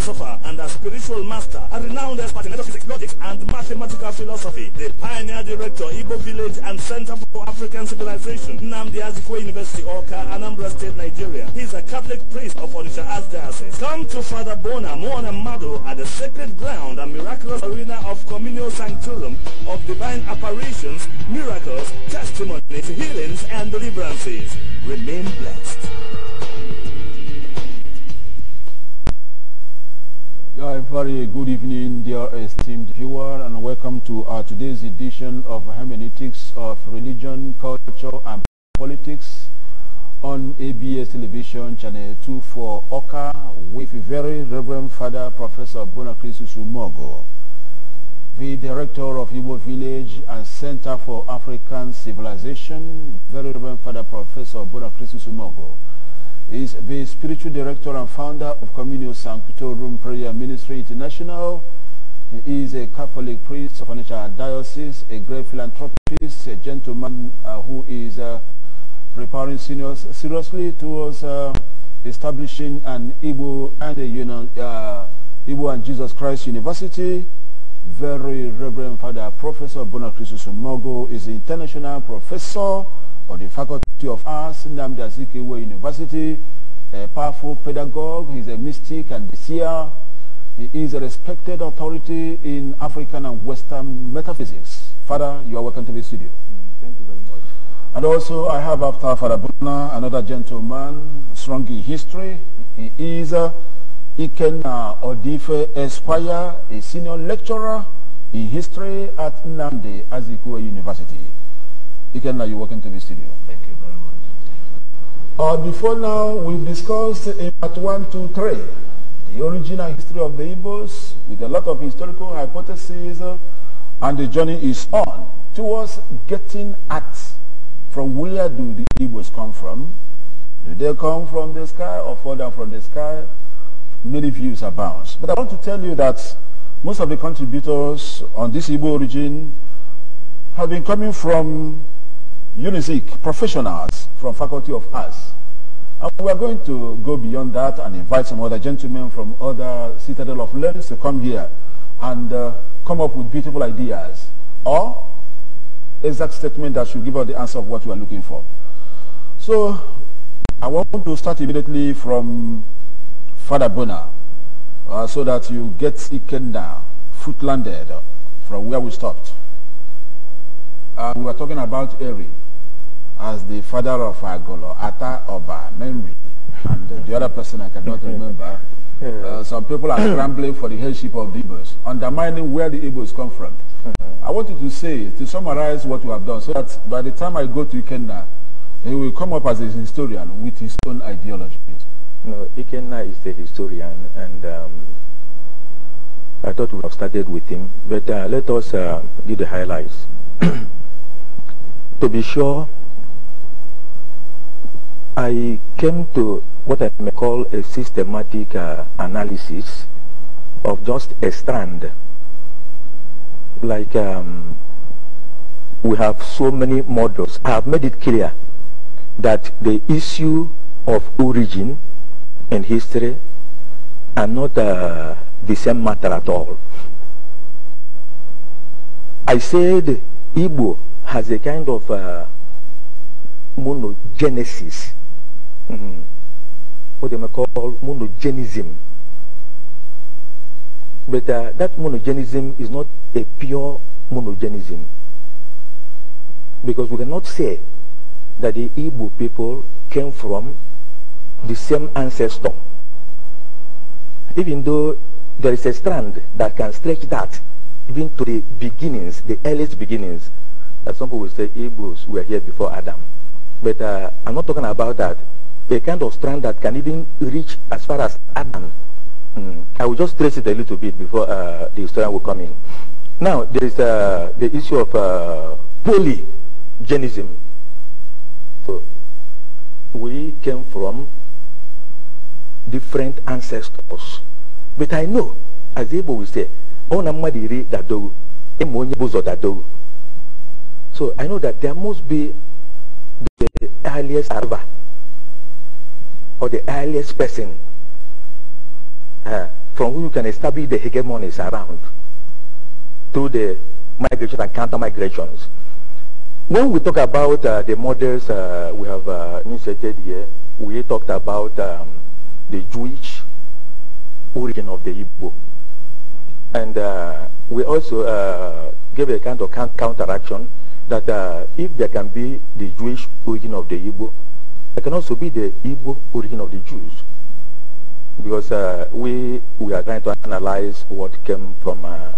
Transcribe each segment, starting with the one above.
philosopher and a spiritual master, a renowned expert in metaphysics, logic, and mathematical philosophy, the pioneer director, Igbo Village and Center for African Civilization, Namdi Azikwe University, Oka, Anambra State, Nigeria. He is a Catholic priest of Onisha Archdiocese. Come to Father Bona Mado, at the sacred ground and miraculous arena of Communal Sanctorum of divine apparitions, miracles, testimonies, healings, and deliverances. Remain blessed. A very good evening, dear esteemed viewer, and welcome to uh, today's edition of Hermeneutics of Religion, Culture, and Politics on ABS Television, Channel 2 for Oka, with very Reverend Father Professor Bonacris Sumogo, the Director of Igbo Village and Center for African Civilization, Very Reverend Father Professor Bonacris Sumogo is the spiritual director and founder of Communio Sanctuary Room Prayer Ministry International. He is a Catholic priest of Onitsha Diocese, a great philanthropist, a gentleman uh, who is uh, preparing seniors seriously towards uh, establishing an Igbo and a uh, Igbo and Jesus Christ University. Very Reverend Father Professor Bonacrissus Mogo is an international professor of the Faculty of Arts, Namdi Azikiwe University, a powerful pedagogue, he's a mystic and a seer. He is a respected authority in African and Western metaphysics. Father, you are welcome to the studio. Mm, thank you very much. And also, I have after Father Bruna, another gentleman, strong in history. He is uh, Ikenna Odife Esquire, a senior lecturer in history at Namdi Azikiwe University. Ikenna, you the studio. Thank you very much. Uh, before now, we have discussed in part 1, 2, 3, the original history of the Igbos with a lot of historical hypotheses uh, and the journey is on towards getting at from where do the Igbos come from? Do they come from the sky or fall down from the sky? Many views abound. But I want to tell you that most of the contributors on this Igbo origin have been coming from UNISIC professionals from Faculty of Arts. And we are going to go beyond that and invite some other gentlemen from other Citadel of Learns to come here and uh, come up with beautiful ideas or exact statement that should give us the answer of what we are looking for. So I want to start immediately from Father Bona uh, so that you get Ikenda foot landed from where we stopped. Uh, we were talking about Eri as the father of Agolo, Ata Oba, memory, and uh, the other person I cannot remember. Uh, some people are scrambling for the headship of the Igbos, undermining where the Igbos come from. I wanted to say, to summarize what we have done, so that by the time I go to Ikenna, he will come up as a historian with his own ideology. No, Ikenna is the historian, and um, I thought we would have started with him, but uh, let us uh, do the highlights. to be sure, I came to what I may call a systematic uh, analysis of just a strand. Like um, we have so many models. I have made it clear that the issue of origin and history are not uh, the same matter at all. I said Igbo has a kind of uh, monogenesis mm -hmm. what they may call monogenism. But uh, that monogenism is not a pure monogenism. Because we cannot say that the Igbo people came from the same ancestor. Even though there is a strand that can stretch that even to the beginnings, the earliest beginnings, that some people will say Igbos were here before Adam. But uh, I'm not talking about that a kind of strand that can even reach as far as Adam. Mm. I will just trace it a little bit before uh, the historian will come in. Now, there is uh, the issue of uh, polygenism. So, we came from different ancestors. But I know, as Igbo will say, ona mmadụ iri dadowu so i know that there must be the earliest arrival or the earliest person uh, from whom you can establish the hegemonies around through the migration and counter-migrations. When we talk about uh, the models uh, we have uh, inserted here, we talked about um, the Jewish origin of the Igbo. And uh, we also uh, gave a kind of counteraction that if there can be the Jewish origin of the Igbo, it can also be the Igbo origin of the Jews, because uh, we we are trying to analyze what came from uh,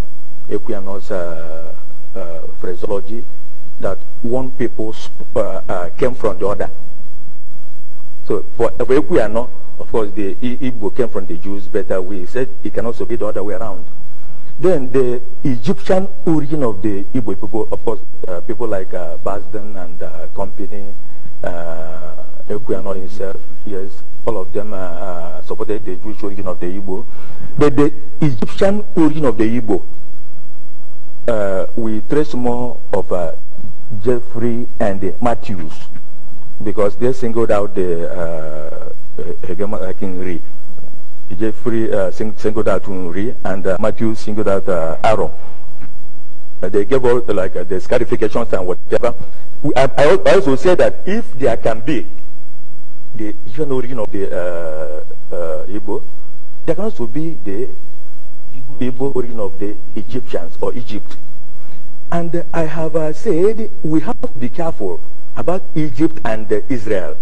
Equiano's uh, uh, phraseology that one people uh, uh, came from the other. So for, for Equiano, of course, the Igbo came from the Jews, but uh, we said it can also be the other way around. Then the Egyptian origin of the Igbo people, of course, people like Basden and company, uh, Ekuyano himself, yes, all of them uh, uh, supported the Jewish origin of the Igbo. But the Egyptian origin of the Igbo, uh, we trace more of uh, Jeffrey and Matthews because they singled out the uh, hegemon uh, King Re. Jeffrey uh, sing singled out Re and Matthew singled out Aaron. they gave out like the scarifications and whatever. I, I also said that if there can be the even origin of the uh, uh, Igbo, there can also be the Igbo origin of the Egyptians or Egypt. And uh, I have uh, said we have to be careful about Egypt and uh, Israel.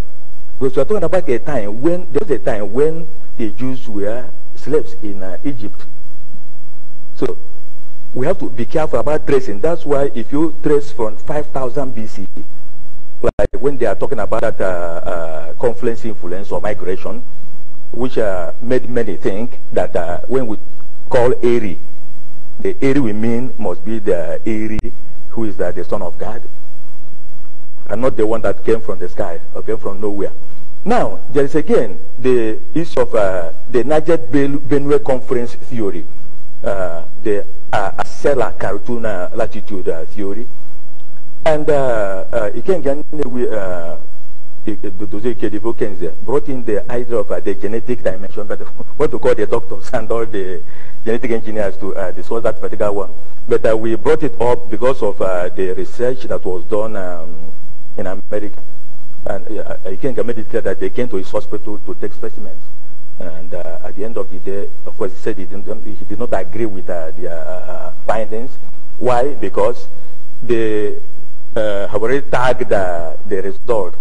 Because we are talking about a time when, there was a time when the Jews were slaves in uh, Egypt. So we have to be careful about tracing. That's why if you trace from 5000 BC like when they are talking about that uh, uh confluence influence or migration, which uh, made many think that uh, when we call Eri, the Eri we mean must be the Eri who is the son of God and not the one that came from the sky or came from nowhere. Now, there is again the issue of uh, the Niger Benue Conference theory, uh, the uh, Acela Cartuna latitude uh, theory, and Ikenga uh, uh, brought in the idea of uh, the genetic dimension, but what to call the doctors and all the genetic engineers to uh, discuss that particular one. But uh, we brought it up because of uh, the research that was done um, in America. And uh, Ikenga made it clear that they came to his hospital to take specimens. And uh, at the end of the day, of course, he said he, um, he did not agree with the findings. Why? Because the have uh, already tagged uh, the result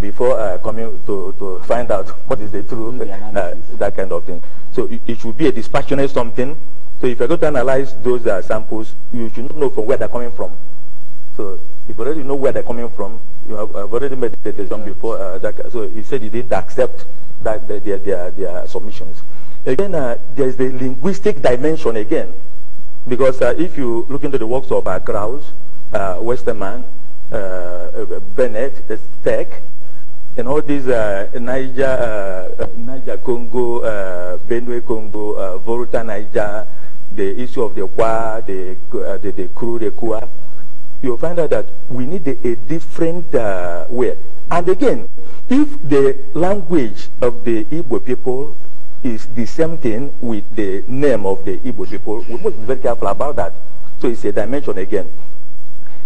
before uh, coming to, to find out what is the truth, uh, that kind of thing. So it, it, should be a dispassionate something. So if you're going to analyze those uh, samples, you should know from where they're coming from. So if you already know where they're coming from, you have I've already made the decision before. Uh, that, so he said he didn't accept that their, their, their submissions. Again, uh, there's the linguistic dimension again. Because if you look into the works of uh, Krauss, uh, Westerman, uh, Bennett, Steck, and all these uh, Niger, Niger Congo, Benue Congo, uh, Volta Niger, the issue of the Kwa, the, the, the crew, the Kwa, you'll find out that we need a, a different uh, way. And again, if the language of the Igbo people is the same thing with the name of the Igbo people, we must be very careful about that. So it's a dimension again.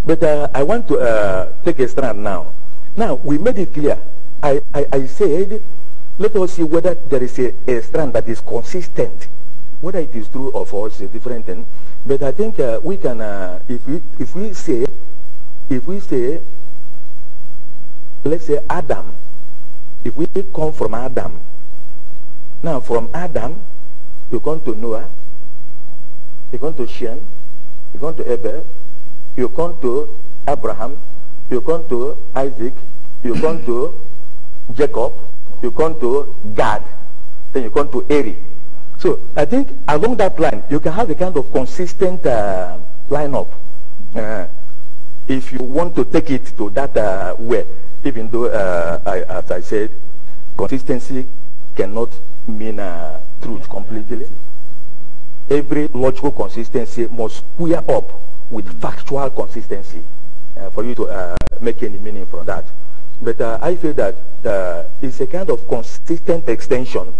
But uh, I want to uh, take a stand now. Now, we made it clear. I, I, I, said, let us see whether there is a, a strand that is consistent. Whether it is true or false is a different thing. But I think uh, we can, uh, if, we, if we say, if we say, let's say Adam, if we come from Adam, now from Adam, you come to Noah, you come to Shem, you come to Abel, you come to Abraham, you come to Isaac, you come to Jacob, you come to Gad, then you come to Eri. So I think along that line, you can have a kind of consistent uh, lineup. Uh, if you want to take it to that uh, way, even though, uh, I, as I said, consistency cannot mean uh, truth completely. Every logical consistency must square up with factual consistency uh, for you to uh, make any meaning from that. But uh, I feel that uh, it's a kind of consistent extension.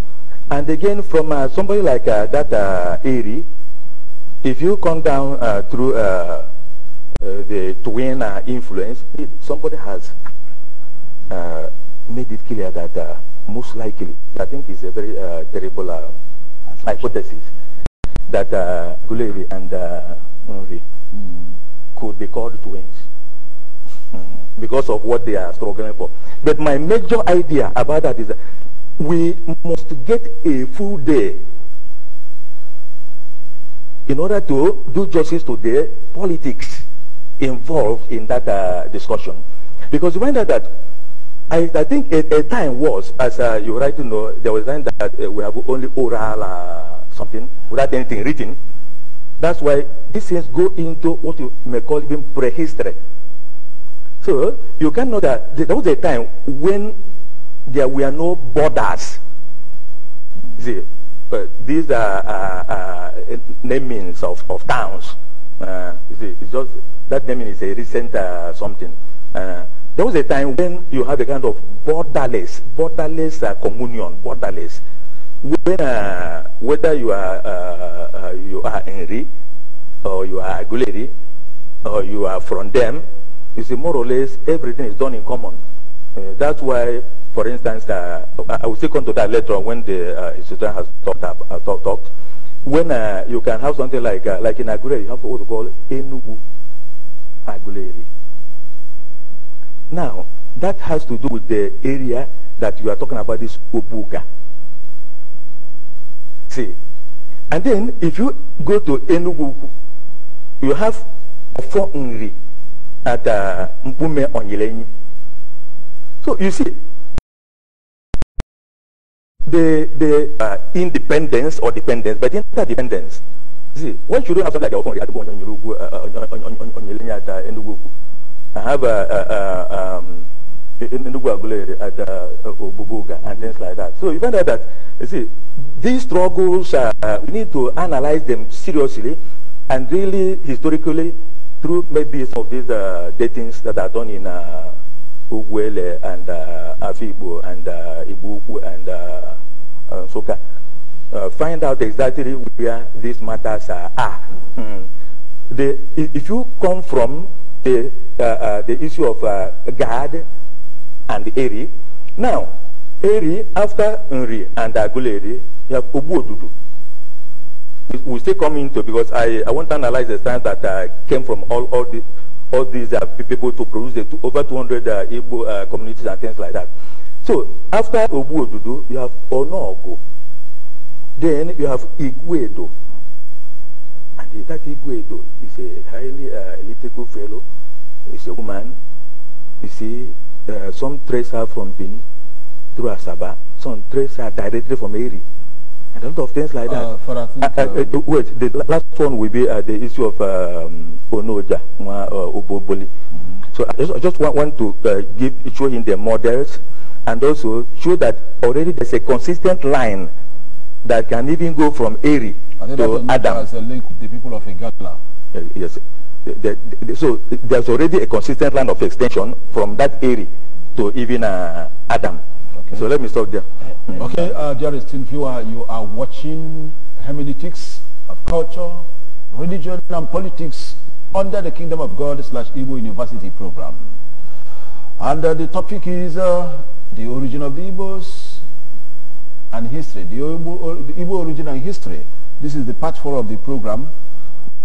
And again, from uh, somebody like uh, that uh, Erie, if you come down through the twin influence, it, somebody has made it clear that most likely, I think it's a very terrible hypothesis, that uh, Guleri and Mm. Could be called twins mm. because of what they are struggling for. But my major idea about that is that we must get a full day in order to do justice to the politics involved in that uh, discussion. Because when that, that I, I think a, a time was, as uh, you rightly know, there was a time that uh, we have only oral uh, something without anything written. That's why these things go into what you may call even prehistory. So you can know that there was a time when there were no borders. See, uh, these are uh, uh, namings of, of towns. Uh, see, it's just that naming is a recent uh, something. Uh, there was a time when you had a kind of borderless, borderless communion, borderless whether, whether you are uh, uh, you are Henry or you are Aguleri or you are from them, you see more or less everything is done in common. Uh, that's why, for instance, uh, I will stick on to that later on when the uh, institution has talked, up, uh, talk, talked. When you can have something like like in Aguleri, you have what we call Enugu Aguleri. Now, that has to do with the area that you are talking about, this Obuga. See? And then if you go to Enugu, you have Ofo Nri at uh, Mpume Onyelenyi. So you see, the, the uh, independence or dependence, but interdependence. See, why should you have something like Ofo Nri at uh, uh, Onyelenyi at uh, Enugu? I have a... Uh, uh, um, in, the at uh, uh, Obubuga and things like that. So you find out that, you see, these struggles, uh, we need to analyze them seriously and really historically through maybe some of these uh, datings that are done in uh, and uh, Afibo and uh, Ibuku and uh, uh, Soka. Uh, find out exactly where these matters are. mm. the, if you come from the, uh, uh, the issue of uh, God and Eri. Now, Eri, after Nri and Aguleri, you have Obuodudu. We still come into because I, I want to analyze the science that uh, came from all, all, the, all these uh, people to produce the two, over 200 uh, Igbo uh, communities and things like that. So after Obuodudu, you have Onogo. Then you have Igwedo. And that Igwedo is a highly uh, elliptical fellow. He's a woman. You see, uh, some trace her from Bini through Asaba, some trace her directly from Eri, and a lot of things like that. Uh, uh, uh, uh wait, the last one will be the issue of um, Onoja, Oboboli. Mm So I just, I just want, want, to give show him the models and also show that already there's a consistent line that can even go from Eri to Adam. As a link with the people of Igala. yes the, the, so there's already a consistent line of extension from that area to even uh, Adam. Okay. So let me stop there. Eh, mm. Okay, uh, dearest viewer, you are watching hermeneutics of culture, religion, and politics under the Kingdom of God slash Igbo University program. And uh, the topic is uh, the origin of the Igbos and history, the Igbo, or, the Igbo origin and history. This is the part four of the program.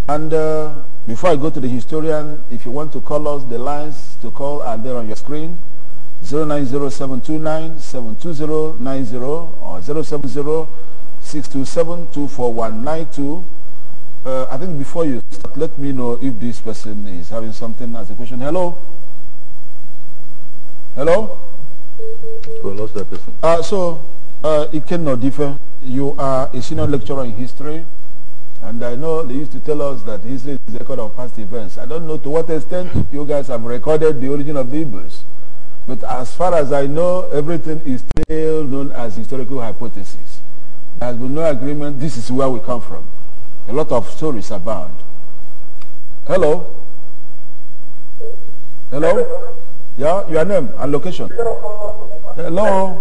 And uh, before I go to the historian, if you want to call us, the lines to call are there on your screen. 090-729-72090 or 070-627-24192. Uh, I think before you start, let me know if this person is having something as a question. Hello? Hello? We lost that person. Uh, so, uh, it cannot differ. You are a senior lecturer in history and I know they used to tell us that history is a record of past events. I don't know to what extent you guys have recorded the origin of the Igbos. But as far as I know, everything is still known as historical hypothesis. There has been no agreement. This is where we come from. A lot of stories abound. Hello? Hello? Yeah, your name and location. Hello?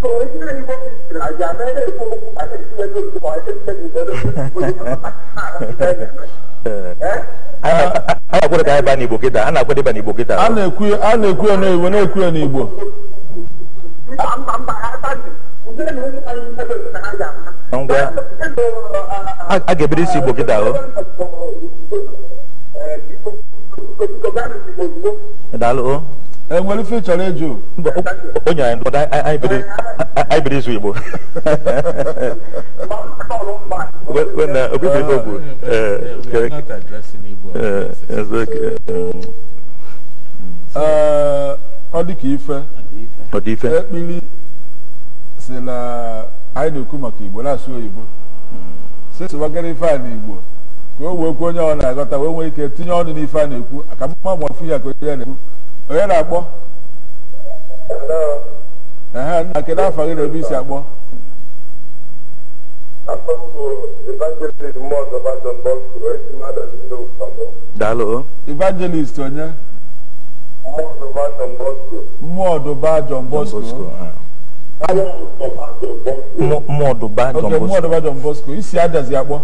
So originally what is Raja, I don't know I can see a little boy, I can tell you that. a na-ekwu ka anyị baa n'igbo kịta a na-akwe dịba n'igbo kịta a na-ekwu ya n'igbo na-ekwu ya n'igbo ngwa a ga-ebido isi igbo kịta o daalụ o enwere ife chọrọ ịjụ onye anyị ndụdọ anyị biri izu igbo obibiri e, n'ogwu e, e, ọ dị ka ife ekpili si na anyị na-ekwu maka igbo na-asụ oyibo hmm. sịsịwagara ife a n'igbo ka o wee kwuo onye ọ na-aghọta wee nwee ike tinye ọnụ n'ife a na-ekwu aka mma ma ọfụ ya ka onye ya na-ekwu onye na-akpọ na kedu afọ gị na ebe isi akpọ evangelist onye mmụọ ọdụba John Bosco mmụọ ọdụba John Bosco isi adazi akpọ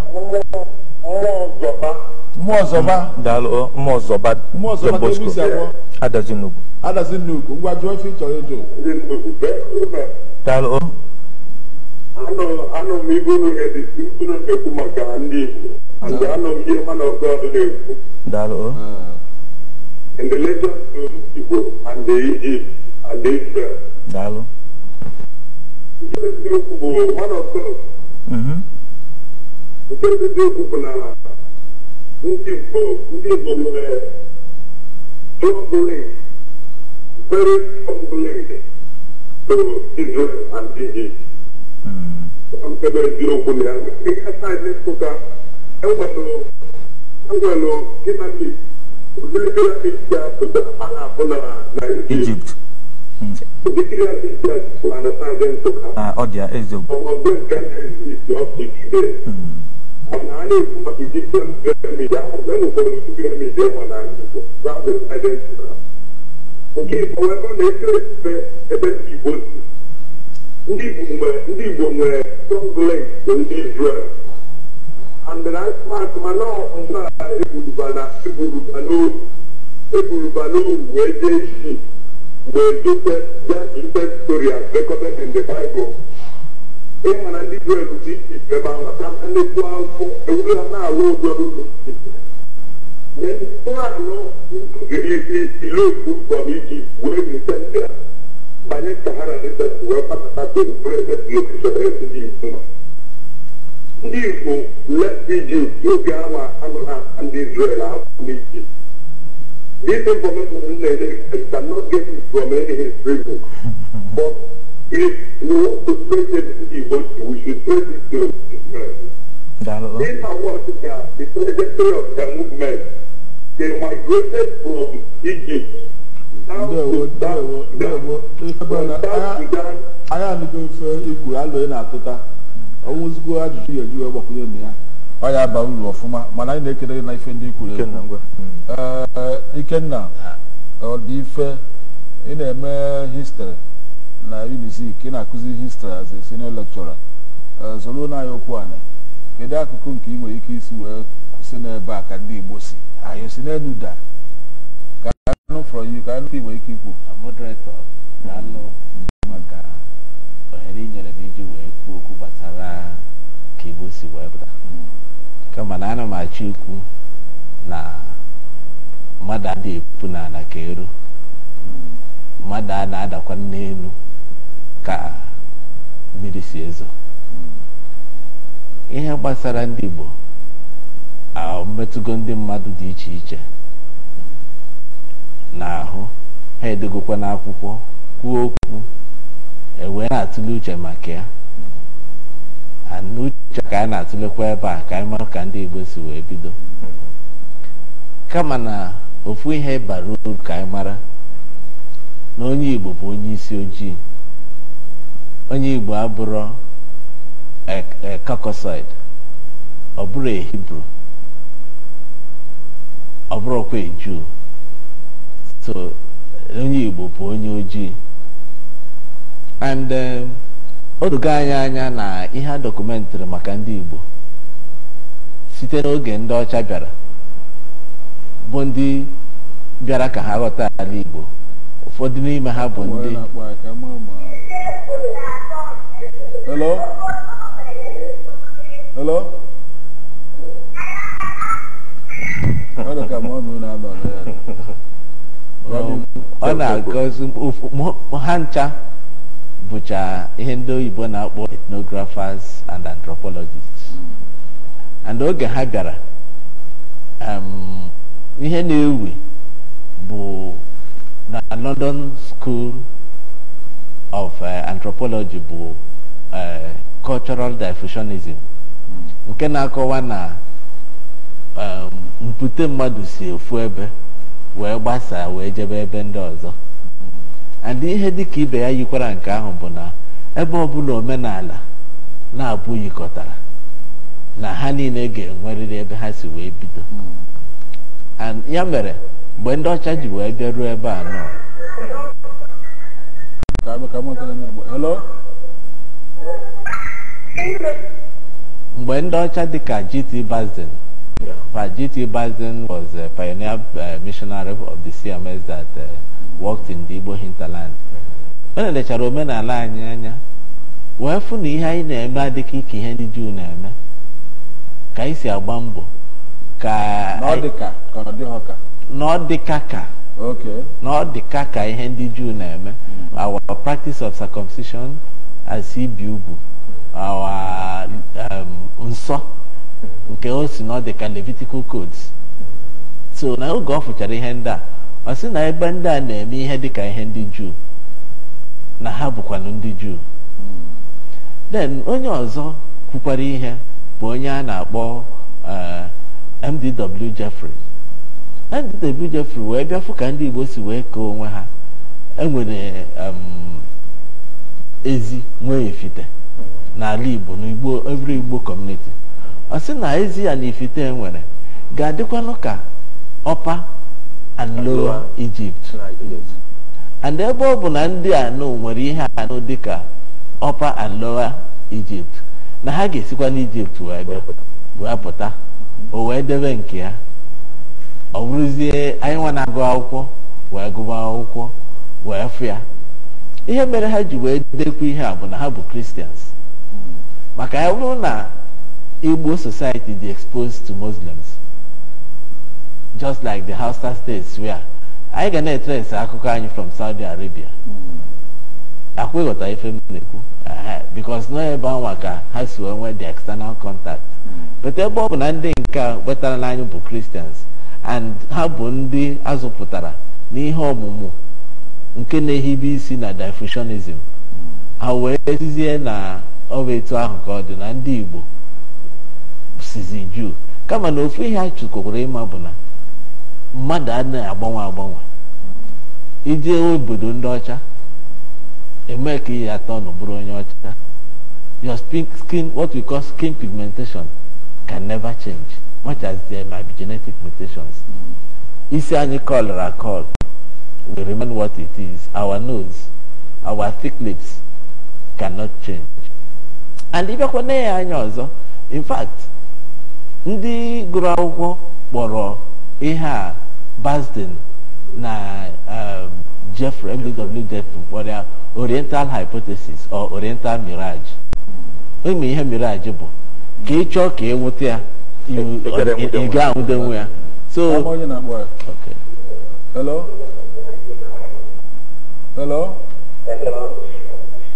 mmụọ zọba adazinugwu adazinugwu ngwa jụọ ife ịchọrọ ịjụ daalụ anọ m dị na-ekwu maka ndị Igbo anọ m ihe mana na-ekwu daalụ in Igbo and the daalụ nke eziokwu bụ one of mm-hmm. Nke bụ na ndị Igbo ndị Igbo nwere trọbụlid very trọbụlid to Israel and Egypt nkebe eziokwu na ya ihe saịdị nsụka enwelụ enwelụ dinamik ụdịrị dinamik dị apụta a na-apụ na na Egypt ụdị dinamik dị apụta na saịdị nsụka ọ dị eziokwu ọmọdụ nke na-ezi ọkụ ikide na a na-ekwu maka digital midia enwekwara digital midia ma na Igbo nke Igbo wee na eserebe ebe ndị Igbo ndị Igbo nwere kọnglet bụ ndị Izrel andịna atụmatụ ndị eburuba n'oru eburuba n'oru wee jee isi wee dote ya storia in the Bible ị mara ndị bụ dị ife ebe ahụ na nnekwu afọ ewuru na-alụ ụjọdụ ile iloku kpọrọ iji wee rute ndị a banye ndị reset wee kpatata ndị Igbo ndị Igbo left iji oge awa ndị Israel afọ if we want to praise everybody, we should praise it to These are what they are, the trajectory of the movement. They migrated from Egypt to na-atụta ọnwụzigbo ajụjụ ya ya mana ikenna ọ dị ife ị na-eme histri na UNIZIK ị na-akụzi histrị as a senior eh, lecturer zoro n'anya okwu ana kedu akụkụ nke ị nwere ike isi wee kwụsị n'ebe a ka ndị Igbo si anyị si n'elu daa ka anụ from you ka anụ ị nwere ike ikwu moderator daalụ maka ohere inyere m iji wee kwuo okwu gbasara ka Igbo si wee pụta kama na ana m achọ ikwu na mmadụ adịghị epu n'ala ka eru mmadụ a na-adakwa n'elu ka mmiri si ezo ihe gbasara ndị Igbo mmetụgo ndị mmadụ dị iche iche n'ahụ ha edogokwa n'akwụkwọ kwuo okwu ewee na-atụle uche maka ya n'uche ka anyị na-atụlekwa ebe a ka anyị mara ka ndị Igbo si wee bido kama na ofu ihe bara uru ka anyị mara na onye Igbo bụ onye isi ojii onye igbo abụrụ kakọsaid e, e, ọ bụrụ hibru ọ bụrụkwa eju so onye igbo bụ onye ojii and um, odoga anyị anya na ihe a dokumentịrị maka ndị igbo site n'oge ndị ọcha bịara bụ ndị bịara ka ha ghọta ala igbo ụfọdụ n'ime ha bụ ndị Hello? Hello? ọ na-agọzi ha ncha bụcha ihe ndị oyibo na-akpọ ethnographers and anthropologists and oge ha bịara um, ihe na-ewe bụ na London School of uh, Anthropology bụ Uh, cultural diffusionism hmm. nke na-akọwa na um, mpute mmadụ si efu ebe wee gbasaa wee jebe ebe ndị ọzọ hmm. and ihe dịka ibe ya yikwara nke ahụ bụ na ebe ọbụla omenala na-abụ yikọtara na ha niile ga-enwerịrị ebe ha si wee bido hmm. ya mere mgbe ndị ọcha ji wee bịa ebe anọ. mgbe ndị ọcha dịka G.T. Basden G.T. Basden was a pioneer eh, missionary of the CMS that eh, worked in the Igbo hinterland mm-hmm. o nelechara omenala anyị anya wee fụ na ihe anyị na-eme adịghị ka ihe ndị Juu na-eme ka anyị si agba mbọ ka na ọ dị ka ka. ọ dịka ka ihe ndị Juu na-eme mm-hmm. our practice of circumcision as ibi ugwu um, nsọ nke o si na ọ dị ka Levitical codes so na oge ọ fụchara ihe ndị a ọ sị na ebe ndị a na-eme ihe dịka ihe ndị juu na ha bụkwanụ ndị juu then onye ọzọ kwukwara ihe bụ onye a na-akpọ uh, MDW Jeffrey MDW Jeffrey wee bịa fụ ka ndị Igbo si wee kee onwe ha enwere um, ezi nwee ifite n'ala igbo na igbo igbo ọ sị na ezi ya na ifite nwere ga-adịkwanụ ka ọpa and lowa Egypt and ebe ọ bụ na ndị anụ nwere ihe dị dịka ọpa and lowa Egypt na ha ga-esikwa n'Ijipt wee pụta o wee debe nke ya ọ bụrụzie anyị na-agụ akwụkwọ wee gụba akwụkwọ wee fụ ya ihe mere ha ji wee dekwa ihe a bụ na ha bụ kristians hmm. maka ya bụrụ na igbo society dị exposed to muslims just like the hausa states where anyị ga na-etresi akụkọ anyị from saudi arabia hmm. akwa ife m na-ekwu because nọ ebe anwa ka ha si nwee the external contact hmm. but ebe ọ bụ na ndị nke wetara bụ kristians and ha bụ ndị azụpụtara n'ihe ọmụmụ nke na-ehibe isi na difusionism. ha wee sizie na ọ bụ etu ahụ ka ọ dị na ndị Igbo sizi juu kama na ofu ihe a ịma bụ na mmadụ anaghị agbanwe agbanwe ije obodo ndị ọcha eme ka ihe atọ nụ bụrụ onye ọcha your skin what we call skin pigmentation can never change much as there may be genetic mutations isi anyị kọlụrụ akọlụ will remain what it is. Our nose, our thick lips cannot change. And ịbịakwa na ya anya ọzọ in fact ndị gụrụ akwụkwọ kpọrọ ihe a Basden na um, Jeffrey MDW Jeffrey kpọrọ ya Oriental Hypothesis or Oriental Mirage. Ịma ihe mirage bụ ka ị chọọ ka ịnwụta ya ị ga-anwụdenwu ya. So, okay. Hello? Hello? Hello?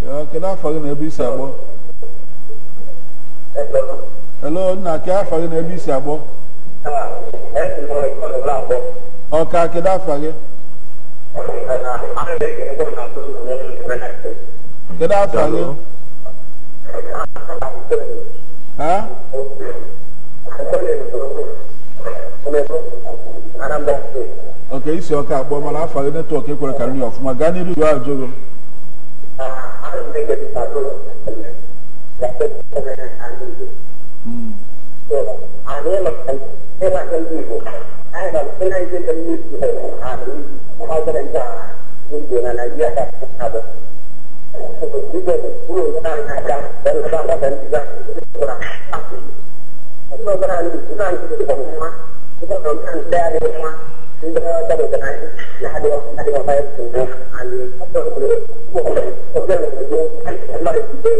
Ya, kedu afọ gị na ebe isi akpọ? Hello? Hello, nna ke afọ gị na ebe isi akpọ? Ọka kedu afọ gị? Kedu afọ gị? Ha? Anambra State. ọka isi ọka akpọ mana afa gị netwọk ekwere karịrị ọfụma gaa n'iru jụọ ajụ gị Thank hmm. you. dari kenai nah di di apa itu ali apa itu bukan bukan itu kan Allah itu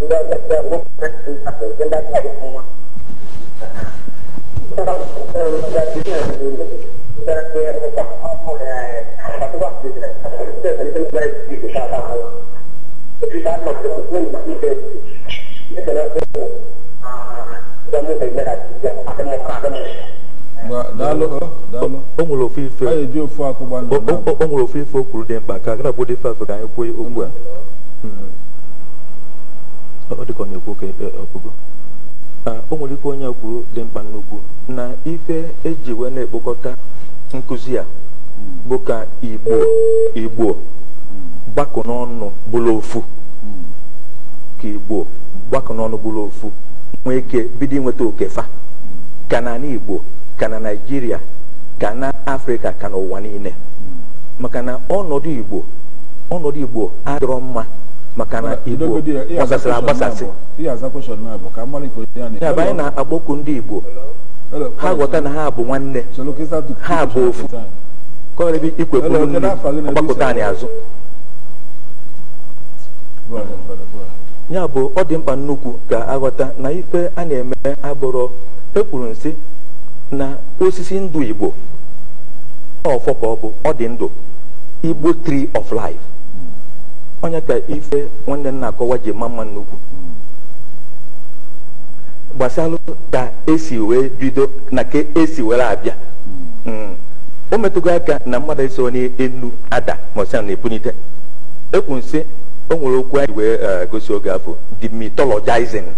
sudah ada bukan tempat benda dari semua kalau sudah dia sudah dia apa apa ya satu waktu itu dari itu dari itu kata Allah kita masuk ke itu itu adalah ah kamu tidak ada ada mau ada mau o nwere ofe ife o nwere ofe ife o kwuru dị mkpa ka agara bụ dị ife afọ ka anyị kwuo okwu a hmm. ọ dịka ọ na-ekwu ka ọkpụgo e, e, o nwere ife onye kwuru dị mkpa nnukwu na ife eji wee na-ekpokọta nkụzi a bụ ka igbo igbo gbakọ n'ọnụ bụrụ ofu ka igbo gbakọ n'ọnụ bụrụ ofu nwee ike bido inweta okefa ka na igbo ka na naijiria ka na afrịka ka ụwa niile maka na ọnọdụ igbo ọnọdụ igbo adịrọ mma maka na igbo gbasasịrị agbasasị ya bụ anyị na-akpọku ndị igbo ha ghọta na ha bụ nwanne ha bụ ofu kọrịbị ikweburu nri ọgbakọta anyị azụ ya bụ ọ dị mkpa nnukwu ka aghọta na ife a na-eme agbụrụ ekwuru nsị na osisi ndụ igbo ọfọ ka ọ bụ ọ dị ndụ igbo tree of life onye ka ife nwanne nna akọwa ji ma mma nnukwu gbasalụ ka esi wee bido na ka esi were abịa hmm. o metụgo aka na mmadụ eso elu ada ma na-ebunite ekwu nsị o nwere okwu anyị wee eh, gosi oge afọ the hmm.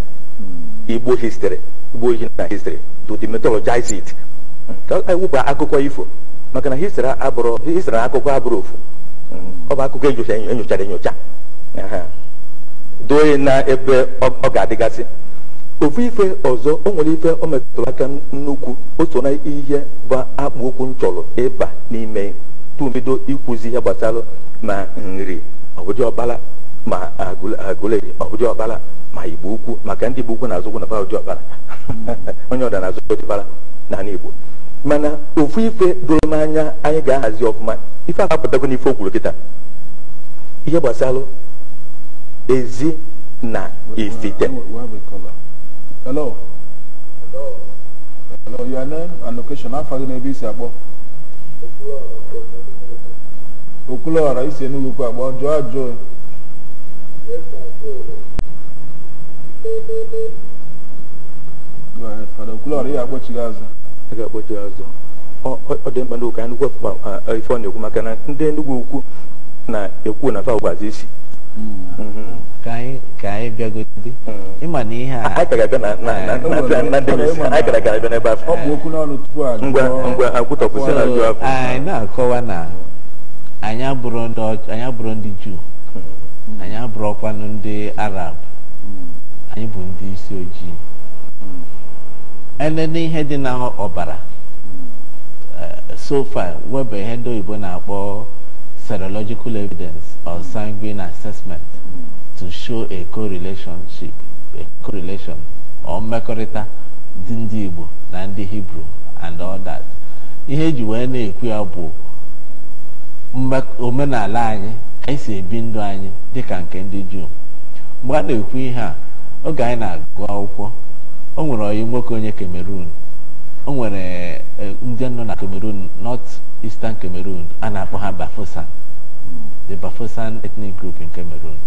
igbo history igbo ojii na histrị to demythologize it e akụkọ ifo maka na na akụkọ abụrụ ofu ọ bụ akụkọ enyochara enyocha doye na ebe ọ ga-adịgasị ofu ife ọzọ o nwere ife o aka nnukwu oso na ihe bụ akpụ okwu m chọrọ ịba n'ime tubido ikwuzi ihe gbasara ma nri ọbụdị ọbara ma agụle ma ụdị ọkpara ma igbo ukwu maka ndị bụ ukwu na azụkwụ na pa ụdị ọkpara onye ọda na-azụ ụdịbara na igbo mana ofu ife doro m anya anyị ga-ahazi ọfụma ife a apụtago n'ife o kwuru kịta ihe gbasara ezi na ifite isi Enugwu akpọ jụọ ajụọ a ga azụ ọ dị mkpa n'ụka anyị gwepụ ife ọ na-ekwu maka na ndị Enugu ukwu na-ekwu na fa isi ka anyị bịagodi ịma na ihe a na akọwa na anyị abụrụ ndị juu Hmm. anyị abụrọkwanụ ndị arab hmm. anyị bụ ndị isi ojii enene hmm. ihe dị na ọbara eh, so far weba ihe ndị oyibo na-akpọ serological evidence or sanguine assessment to show a relationship a correlation mmekọrịta dị ndị Igbo na ndị Hebrew and all that ihe eji wee na-ekwu ya bụ omenala anyị anyị si ebi ndụ anyị dịka nke ndị juu mgbe a na-ekwu ihe a oge anyị na-agụ akwụkwọ o nwere oyi nwoke onye Cameroon o nwere e, ndị nọ na Cameroon North Eastern Cameroon a na-akpọ ha Bafosan the Bafosan ethnic group in Cameroon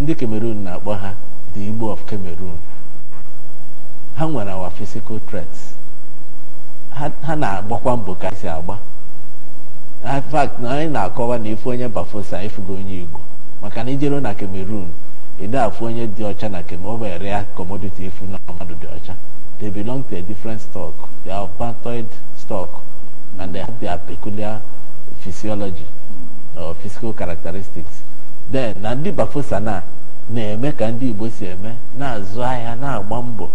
ndị Cameroon na-akpọ ha the Igbo of Cameroon ha nwere our physical threats ha na-agbakwa mbọ ka si agba na fact na anyị na-akọwa na ife onye bafosa ịfụgo onye igbo maka na ijere na cameroon ede afụ onye dị ọcha na kemoberia commodity ifu na mmadụ dị ọcha they belong to a different stock they are stock and they have their peculiar physiology or physical characteristics then na ndị bafosa na na-eme ka ndị igbo si eme na-azụ ahịa na-agba mbọ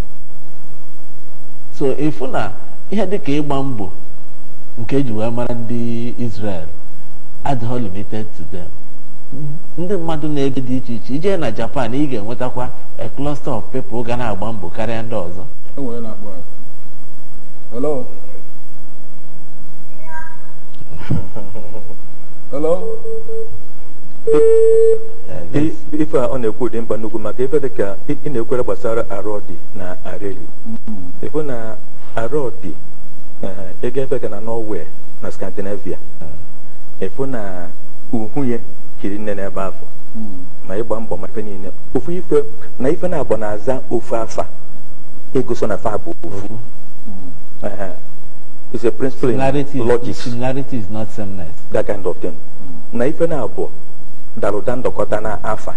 so ịfụ na ihe ka ịgba mbọ nke eji wee mara ndị Israel adịghị limited to them ndị mmadụ na ebi dị iche iche ije na Japan ị ga-enwetakwa a cluster of people ga na-agba mbọ karịa ndị ọzọ e na-ekwu dị mkpa nnukwu maka dị mm. ege ebe ka na norway na scandinavia hmm. efu na uhu ya nne n'ebe afọ hmm. ma ịgba mbọ ma efe niile ofu ife na ife na-abụ na-aza ofu afa egoso na fa bụ ofu hmm. is a principle in logic is not that kind of thing na ife na-abụ daruda ndọkọta na afa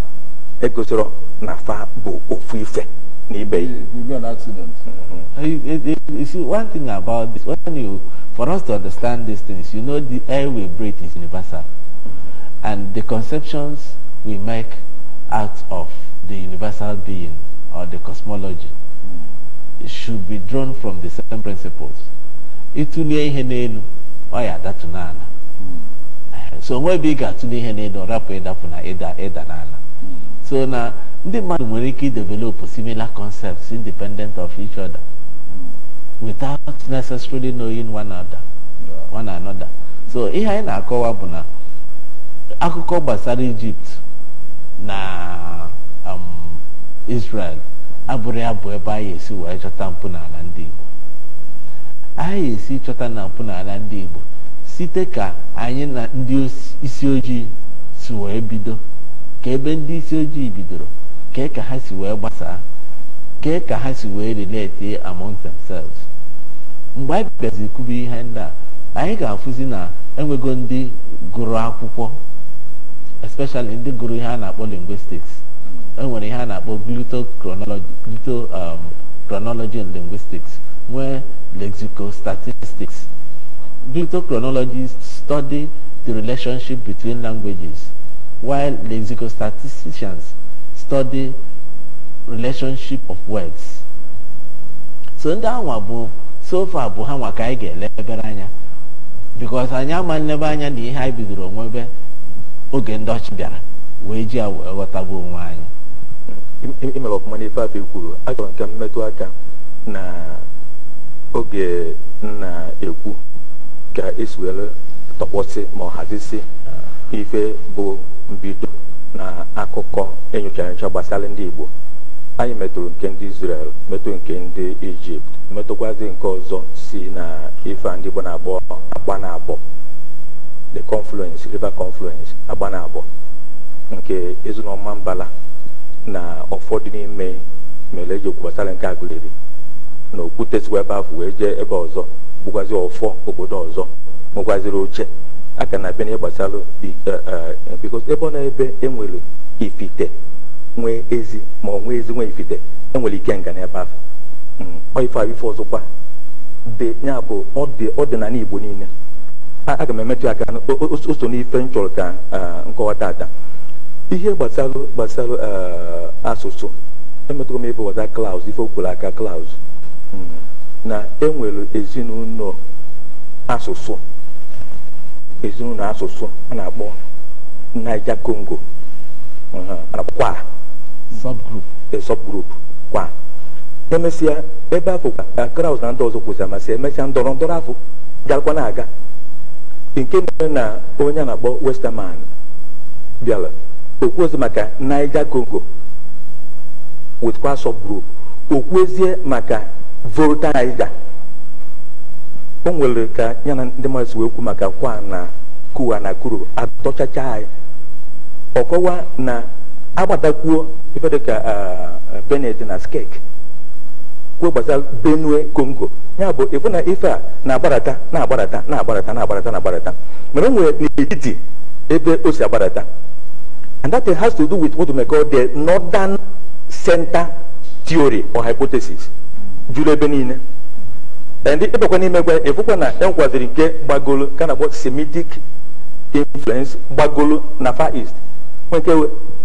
egosoro na fa bụ ofu ife eBay. You, will be an accident. Mm -hmm. you, you, see, one thing about this, when you, for us to understand these things, you know the air we breathe is universal. And the conceptions we make out of the universal being or the cosmology mm should be drawn from the same principles. Itunye ihe n'elu, ọ mm. So nwe ebe ị ga-atụle ihe n'elu, ọ rapụ eda na ịda so na ndị mmadụ nwere ike develop similar concepts independent of each other hmm. without necessarily knowing one another one another so ihe anyị na-akọwa bụ na akụkọ gbasara Egypt na um, Israel abụrụ ya bụ ebe anyị esi wee chọta n'ala ndị Igbo anyị esi chọta na mpụnala ndị Igbo site ka anyị na ndị isi ojii si wee bido ka ebe ndị isi ojii bidoro kee ka ha si wee gbasaa kee ka ha si wee relate among themselves mgbe anyị bịazi kwube ihe ndị a anyị ga-afụzi na enwego ndị gụrụ akwụkwọ especially ndị gụrụ ihe a na-akpọ linguistics enwere ihe a na-akpọ glutochronology um, and linguistics nwee lexicostatistics glutochronology study the relationship between languages while lexicostatistians study relationship of words so ndị anwa bụ sofa bụ ha nwa ka anyị ga-ele ebere anya because anyị ama nlebe anya na ihe anyị bidoro nwebe oge ndị ọchị bịara wee ji wee ghọtagbu onwe anyị imere ọfụma n'ife afọ kwuru achọrọ nke mmetụ aka na oge na-ekwu ka esi were ma ọ hazisi ife bụ mbido na akụkọ enyocha enyocha gbasara ndị Igbo anyị metụrụ nke ndị Israel metụ nke ndị Ijipt metụkwazi nke ọzọ si na ife ndị Igbo na-akpọ Agbanabọ the confluence river confluence na-abọ. nke Ezinoma Mbala na ụfọdụ n'ime mere eji okwu gbasara nke agụleri na okwute sikwa ebe afọ wee jee ebe ọzọ bụkwazi ọfọ obodo ọzọ nwekwaziri oche aka na abịa na ịgbasara e, e, e, bikos ebe ọ na-ebe enwere ifite nwee ezi ma ọ nwee ezi nwee ifite enwere ike nga n'ebe afọ hmm. ife a ife ọzọkwa dị ya bụ ọdịnala igbo niile aga m emetụ aka o so n'ife m chọrọ ka nkọwa tata ihe gbasara gbasara asụsụ emetụrụ m ife wata klaus ife okwuru aka klaus hmm. na enwere ezinụlọ asụsụ ezinụlọ asụsụ a na-akpọ Niger Congo kwa subgroup a e, subgroup kwa emesịa ebe afọ kraus na ndị ọzọ kwụsịrị amasị emesịa ndọrọ ndọrọ afọ garakwa na-aga nke mere na onye a na-akpọ Westerman bịara okwu maka Niger Congo with kwa subgroup okwu ezie maka Volta Niger o nwere ka ya na ndị mmadụ si wee kwu maka kwa na kuwa na kuru atọchacha anyị ọkọwa na agbatakwuo ife dịka benet na skek kwuo gbasara benue congo ya bụ ịfụ na ife a na-agbarata na-agbarata na-agbarata na-agbarata na-agbarata mana o nwere n'etiti ebe o si agbarata and that has to do with what we call the northern center theory or hypothesis juru ebe niile And the n'ime gwa ịfụkwa na e kind of gbagolo semitic influence gbagolo na far east nweke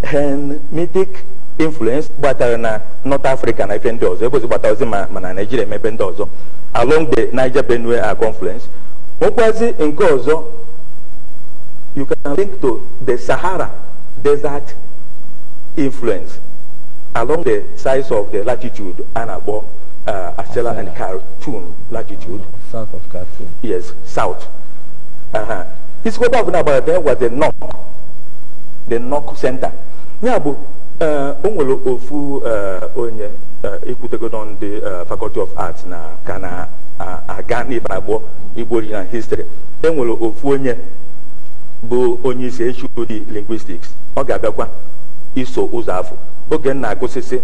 hemitic influence gbatara not African. africa na ife it. ọzọ ebozi gbata ozi ma ma along the niger benue a confluence it in ọzọ you can link to the sahara desert influence along the sides of the latitude and above. uh, and Khartoum latitude. South of Khartoum. Yes, south. Uh-huh. Isikota of there was the north, the north center. Ya bụ o nwere ofu uh, onye ekwutego nọ ndị faculty of arts na ka na-aga n'ibe abụọ Igbo na history e nwere ofu onye bụ onye isi HOD linguistics ọ ga-abịakwa iso ụzọ afọ oge na-agụsịsị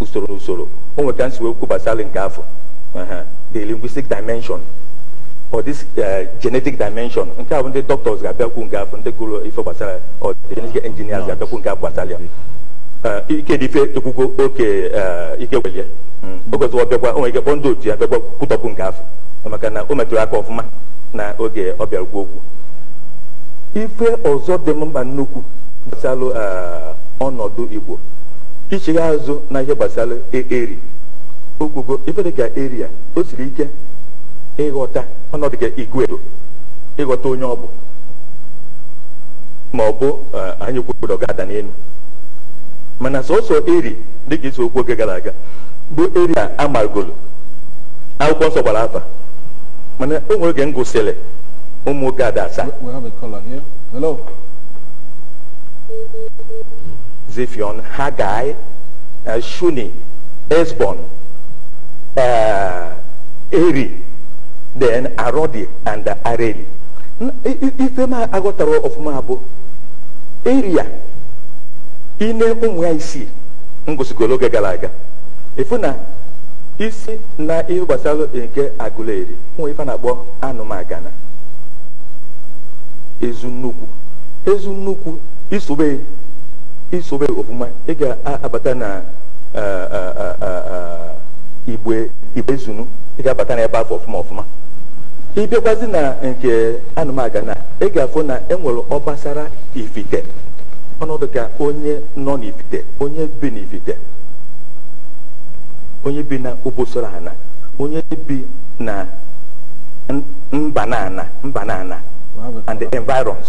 usoro usoro o nwere ka m wee nke afọ the linguistic dimension or this uh, genetic dimension nke ahụ ndị doctors ga-abịakwu nke afọ ndị gụrụ ife gbasara or genetic engineers ga-abịakwu nke afọ uh, ike dị ife oke uh, ike hmm. nwere maka na o metụrụ aka ọfụma na oge ọ okwu ife ọzọ dị nnukwu ọnọdụ igbo ichigha azụ na ihe gbasara e-, eri okwugo ife ga eri a o siri ike ịghọta ọnọdụ ka igwe ịghọta onye ọ bụ ma ọ bụ e, anyị kwuodo ga-ada n'elu mana sọsọ eri ka isi okwu oge gara aga bụ eri a akwụkwọ nsọ gbara afa mana o nwere oge m ụmụ nwoke ada asaa Zephion, Haggai, uh, Shuni, Esbon, uh, Eri, then Arodi and uh, Areli. Ife m aghọtara ọfụma bụ eria ine ụmụ ya isii m oge gara aga efu na isi na ihe gbasara nke agụleri nwe ife na-akpọ anụmagana ezu nnukwu ezu nnukwu isobe isobe ofuma ị ga-abata na igbe igbe zunu ị ga-abata na ebe afọ ọfụma ọfụma ịbịakwazi na nke anụmaga na ị ga-afụ na enwere ọgbasara ifite ọnọdụ ka onye nọ n'ifite onye bi n'ifite onye bi na obosoro ana onye bi na mba na ana mba na ana and environs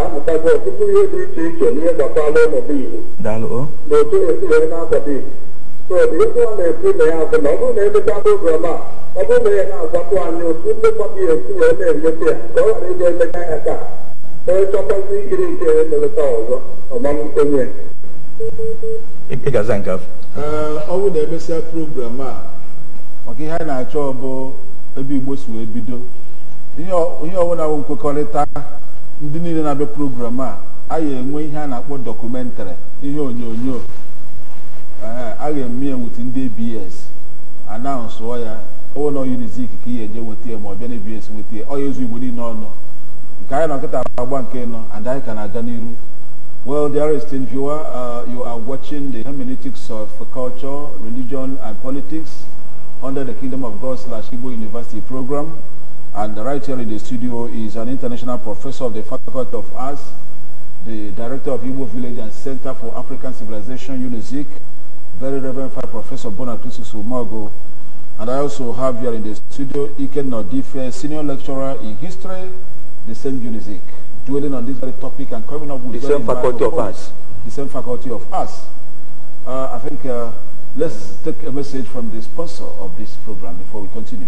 ebe ọtụtụ ihe dị iche iche n'ihe gbasara ọnọdụ iwu na otu esi wee na-akwado Igbo so ihe a na-ekwu na ya bụ na ọ bụrụ na emechaa program a ọ bụrụ na ya na-agwatụ anyị otu nlekwa gị esi wee na-emeta ya ka ọ ghara ịga emecha ya taa onye chọtazi ikiri nke ya emeleta ọzọ ọmamkwenye ọ bụrụ na emesịa program a maka ihe a na-achọ bụ ebe Igbo si wee bido ihe ọbụla bụ nkwekọrịta ndị niile na-abịa program a a ga-enwe ihe a na-akpọ dọkụmentarị ihe onyonyo a ga-eme ya wit ndị abs anaụnsụọ ya ụlọ unizik ka ị ga-eje nweta ya ma ọ bịa na abs nweta ya ọ ezu igbo niile ọnụ nke anyị na nkịta agba nke nọ and anyị ka na-aga n'iru Well, dearest viewer, uh, you are watching the hermeneutics of culture, religion, and politics under the Kingdom of God slash Igbo University program. And right here in the studio is an international professor of the Faculty of Arts, the director of Igbo Village and Center for African Civilization, UNIZIC, very Reverend Professor Bonacris Sumago. And I also have here in the studio Iken Nodife, senior lecturer in history, the same UNIZIC, dwelling on this very topic and coming up with the same faculty of arts. The same faculty of arts. Uh, I think uh, let's take a message from the sponsor of this program before we continue.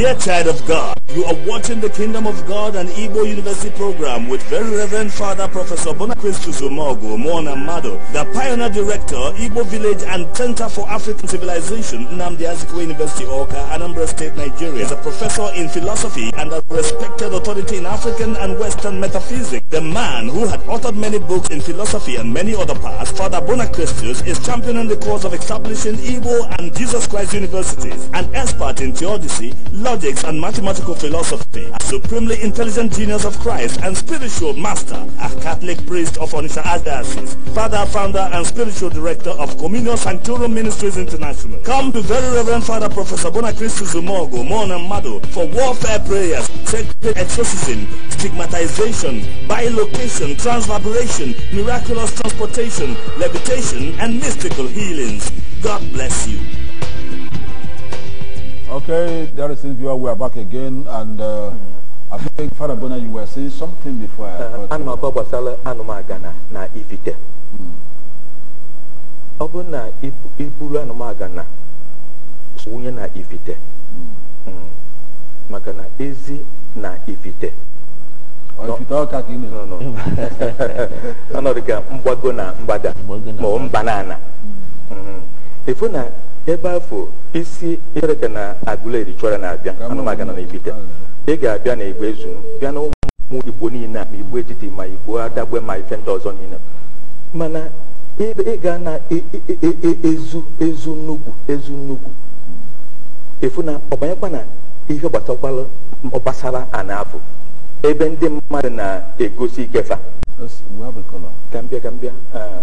Dear child of God, you are watching the Kingdom of God and Igbo University program with Very Reverend Father Professor Bonacristus Zumogo Mona Mado, the pioneer director, Igbo Village and Center for African Civilization, Namdi Azikiwe University, Oka, Anambra State, Nigeria. As a professor in philosophy and a respected authority in African and Western metaphysics. The man who had authored many books in philosophy and many other parts, Father Bonakristus is championing the cause of establishing Igbo and Jesus Christ universities. An expert in theodicy, love logics and mathematical philosophy, a supremely intelligent genius of Christ and spiritual master, a Catholic priest of Onitsha Archdiocese, father, founder and spiritual director of Communion Sanctorum Ministries International. Come to Very Reverend Father Professor Bonacristo Zumogo, Mon and Mado for warfare prayers, sacred exorcism, stigmatization, bilocation, transvibration, miraculous transportation, levitation and mystical healings. God bless you. Okay, there is viewer. We are back again, and uh, I think Father Bona, you were saying something before. Anọkọ gbasara anụmagana na ifite. Ọ hmm. bụrụ na iburu anụmagana wunye na ifite, hmm. hmm. maka na ezi na ifite. ifite ọka ka ị no no. Ọnọdụ ka mgbago na mbada. ma ọ mba na ana. Efu na ebe afọ isi chereka na agụleri chọra na-abịa anụmaga na ebite ị ga-abịa na igbo ezu bịa na ụmụ igbo niile a ma igbo etiti ma igbo adagbe ma ife ndị ọzọ niile mana ịga na e, e, e, ezu ezu nnukwu ezu nnukwu efu na ọbanyekwa na ihe gbasakwala gbasara ana afọ ebe ndị mmadụ na-egosi ikefa ka mbịa ka mbịa ah.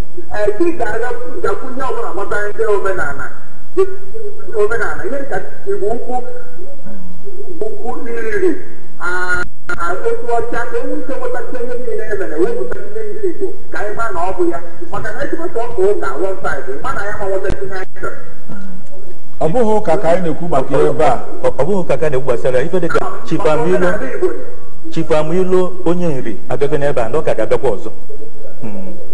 ị ga gakwu nye ọbụla gbasara ndị omenala omenala ihe ka igbo ukwu ukwu iriri otu ọcha ka ewu ike nwetacha ihe niile wepụta ihe ndị igbo ka anyị na ọ ya maka na ọka ụka ma na ya anyị chọrọ ụka ka anyị na-ekwu maka gbasara ife dịka chifamilo chifamilo onye nri agaghị n'ebe a na ọ ka ga-abịakwa ọzọ hmm.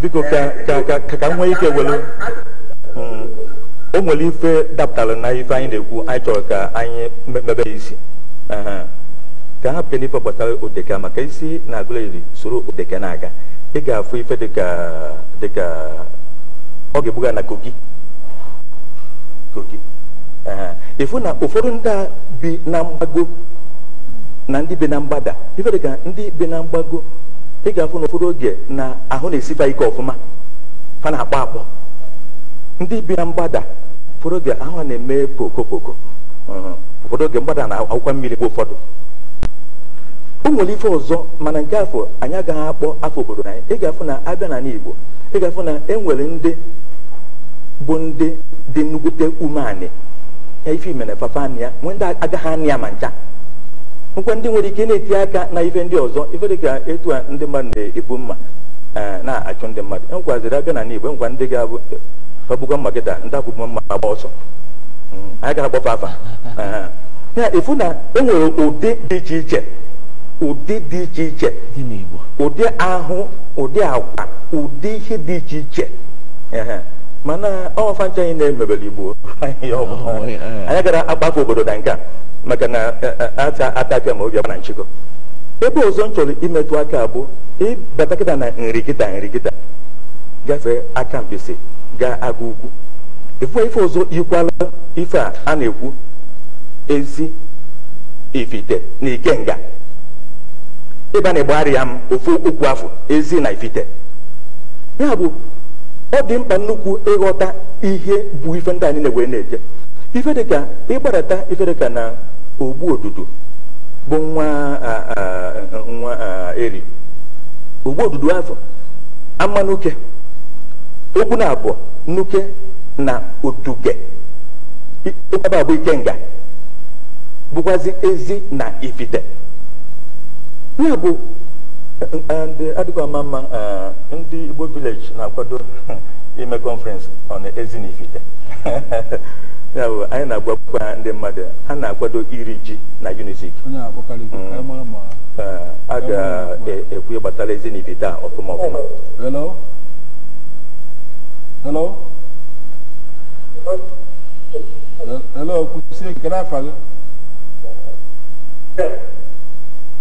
biko ka ka nwee ike welu hmm. o nwere ife dapụtara na ife anyị na-ekwu anyị chọrọ ka anyị mebe isi ka ha pụta n'ife gbasara odeka maka isi na-agụla iri soro odeka na-aga ị ga-afụ ife dịka dịka ọ ga-ebuga na kogi kogi ịfụ na ụfọdụ ndị bi na mgbago na ndị bi na mgbada ife dịka ndị bi na mgbago ị ga-afụ n'ụfọdụ oge na ahụ na-esiba ike ọfụma ha na-akpọ akpọ ndị bi na mgbada ụfọdụ oge ahụ na-eme poko poko ụfọdụ oge mgbada na akwụkwọ mmiri bụ ụfọdụ o nwere ife ọzọ mana nke afọ anyị agaghị akpọ afọ obodo anyị ị ga-afụ na abịa na igbo ị ga-afụ na enwere ndị bụ ndị dị nnukwute umeanị ya ife imere fafa anị ya nwee ndị agaghị anị ya ma ncha nkwe ndị nwere ike na-eti aka na ife ndị ọzọ ife ka etu a ndị mmadụ na-ebu mma e, na-achụ ndị mmadụ enwekwaziri abịa na n'igbo e nkwa ndị ga-abụ gbagbugwa e, mma gị daa ndị agbụgbọ mma agba ọsọ hmm, anyị ga-agbafa afa ya efu na enwere ụdị dị iche iche ụdị dị iche iche ụdị ahụ ụdị agwa ụdị ihe dị iche iche mana ọfa ncha anyị na-emebere igbo anyị gara akpafe obodo da nka maka na ata atapịa ma obi na nchịkọ ebe ọzọ m chọrọ imetụ aka abụ ịbata kịta na nri kita nri kịta gafee aka mpisi ga aga ugu ife ife ọzọ ikwala ife a a na-ekwu ezi ifite na ikenga ịba na ịgbagharị ya m ofu okwu afọ ezi na ifite ya bụ ọ dị mkpa nnukwu ịghọta ihe bụ ife ndị anyị na-ewere na-eje ife dịka ịgbadata ife dịka na ogbu odudu bụ nwa nwa eri ogbu odudu afọ ama n'uke okwu na abụọ n'uke na otuge bụ abụ ikenga bụkwazi ezi na ifite ya bụ and adịghị ama ndi ndị igbo village na-akwado ime conference on ezinifite ya anyị na-agwakwa ndị mmadụ ha na-akwado iri ji na unizik mm. uh, a ga-ekwu gbatara ezinifite a ọfụma ọfụma hello hello hello kwụsie nke n'afa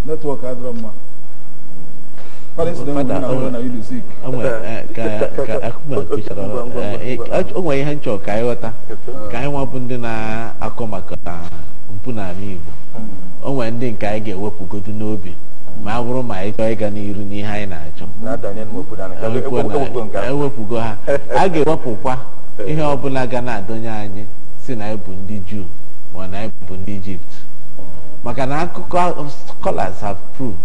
netwọk adịrọ mma o nwere ihe nchọ ka anyị ghọta ka anyị nwabụ ndị na-akọ maka mpụ n'ala Igbo o nwere ndị nke anyị ga-ewepụgodu n'obi ma a bụrụ ma anyị chọọ ịga n'iru n'ihe anyị na-achọ ewepụgo ha a ga-ewepụkwa ihe ọbụla ga na-adọnye anyị si na anyị bụ ndị Juu ma na anyị ndị Ijipt maka na akụkọ scholars have proved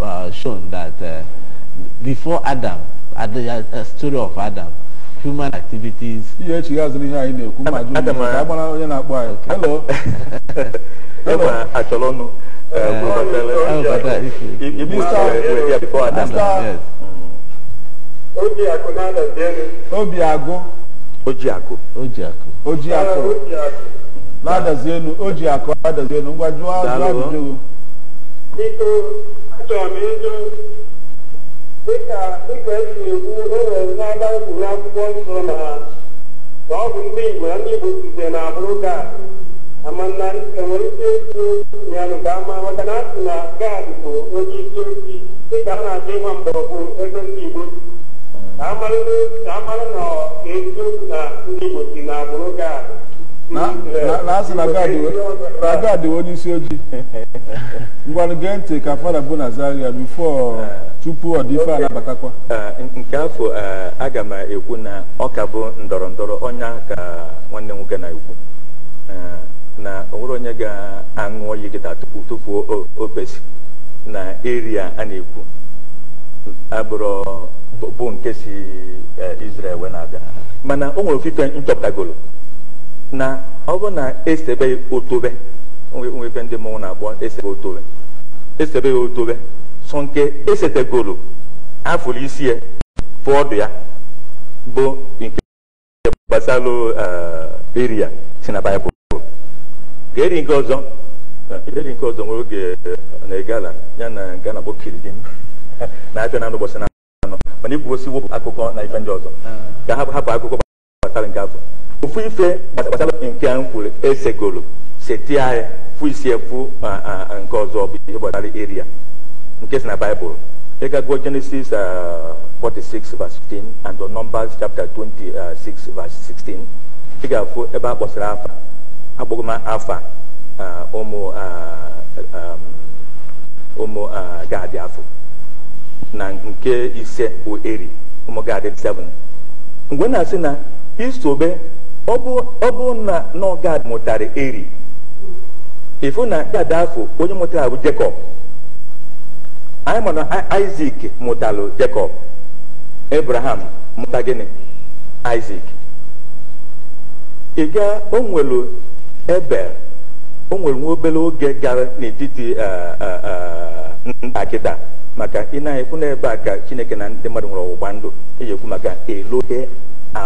uh, shown that uh, before Adam, at the uh, uh, story of Adam, human activities. Ihe echi gaazụ n'ihe anyị na-ekwu ma jụ ndị ka agbara Hello. Hello. Hello. Hello. Hello. Hello. Achọrọ ọnụ. Obiagụ. Ojiakụ. Ojiakụ. Ojiakụ. Na-adazi elu, Ojiakụ adazi elu, ngwa jụọ ajụjụ. Biko achọrọ m ịjụ dịka dịka esi ekwu enwere n'aba ekwuru akwụkwọ nsọ na na ọ bụ ndị igbo na ndị igbo site na abụrụ gad amana enwere ike ịkwu yanụ ka ama maka na asị na gad bụ onye isi osi dịka a na-achọ ịma mgbọrọgwụ ebe ndị igbo ka amara na eziokwu na ndị igbo si na abụrụ gad na asị na God bụ onye isi ojii ngwanụ gee ntị ka fada bụ na Zaria bifo tupu ọ dị anabatakwa eh, nke afọ eh, aga m ekwu na ọ ka bụ ndọrọ ndọrọ ọnya ka nwanne nwoke na-ekwu eh, na onwere onye ga-aṅụ oyi kịta tupu tupu opesi na eria a na-ekwu agbụrụ bụ nke si Israel wee na-abịa mana o nwere ofufe nchọpụtagolo na ọ bụ na esebe otobe nwebe ndị mmọnwụ na-akpọ esebe otobe esebe otobe so nke esetegoro afụrụ isi ya fụ ya bụ nke gbasara eri eh, ya si na baịbụl ka eri nke ọzọ eri nke ọzọ nwere oge eh, na-egala ya na nke na-akpọ kiridim na-abịa na ụbọchị na anọ mana ikwuosi wepụ akụkọ na ife ndị ọzọ ah. ka hapụ akụkọ gbasara nke afọ ofu ife gbasara nke a m kwuru esegoro seti anyị fụ isi efu nke ọzọ bụ ihe gbasara eria nke si na baịbụl ịgago genesis 46 verse 15 and numbers chapter 26 verse 16 ị ga-afụ ebe a afa akpọgo m afa ụmụ um, ụmụ gad afu na nke ise bụ eri ụmụ gad 7 mgbe na-asị na isobe ọ bụ na nọgad mụtara eri ifu na gad afọ onye mụtara bụ jacob anyị ma na Isaac mụtalụ Jekọb Abraham mụta gịnị ị ịga o nwelu Ebel o nwere nwa obere oge gara n'etiti eh, eh, eh, ntakịta maka ị na-ekwu n'ebe a ka Chineke na ndị mmadụ nwere ọgbụgba ndụ eji ekwu maka Elohe